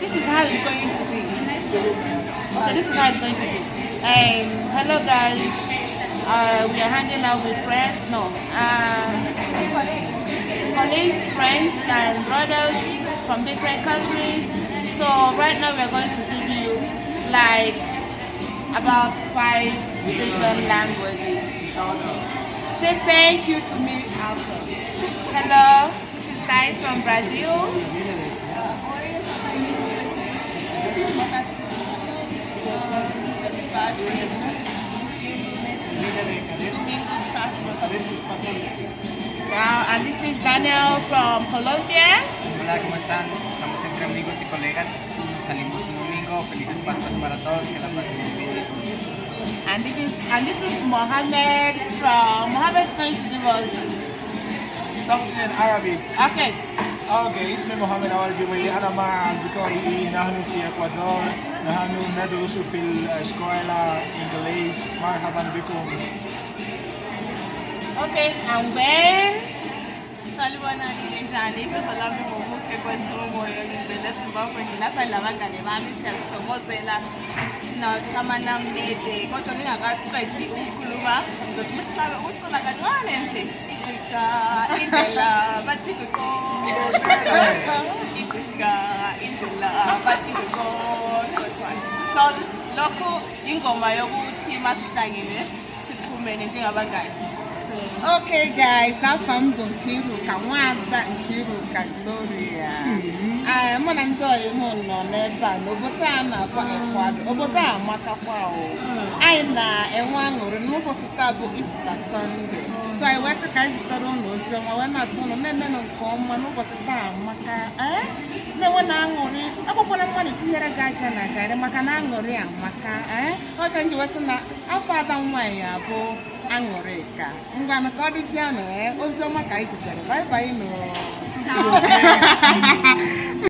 this is how it's going to be. Okay, this is how it's going to be. Um, hello guys. Uh, we are hanging out with friends. No. Uh, colleagues, friends, and brothers from different countries. So right now we're going to give you like about five different languages. Say thank you to me after. Hello, this is Thais from Brazil. and this is Daniel from Colombia. Hola, ¿cómo están? Estamos entre amigos y colegas. Salimos un domingo. Felices Pascuas para todos. Que la pasen muy bien. And this is, and this is Mohammed from... Mohammed is going to give us... Something in Arabic. Okay. اوكي اسمي محمد اول جوي انا مع اصدقائي نحن في اكوادور نحن ندرس في الاسكولا انجليز مرحبا بكم Okay, and when salibona ninjani ibizo lami ngobuhle kwenzomoyo ngivele ezimbabwe nginapha nabangane bami siyazithokozela sinatama namnede kodwa ningakaqedi ukukhuluma ngizothi umhlabe ukucula kancane nje igqiga indlela bathi ngiqoqo igqiga indlela bathi ngiqoqo so lokho ingoma yokuthi masihlangene siphumene njengabangane oke guys afọ m bụ Nkiruka nwada ka Gloria mụ na ndị ọyị m nọ n'ebe a n'obodo a na-akpọ Ekwado obodo a amatakwa anyị na-enwe aṅụrị n'ụbọchị taa bụ Ista Sọnde so anyị wee sị ka anyị zitere ụlọ oziọma wee na-asị ụlọ na-emenụ nke ọma n'ụbọchị taa amaka na-enwe na aṅụrị akpọkwala mmadụ tinyere gị aja na garị maka na aṅụrị amaka ee eh? ọ ndị wesị na afọ ada nwaanyị bụ aṅụrị ka ngwanụ ka ọ dịzie anụ ee eh? ọma ka anyị zitere bye bye nụ